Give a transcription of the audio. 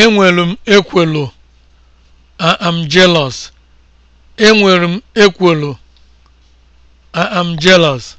Enwere m ekwelo am jealous. jealous.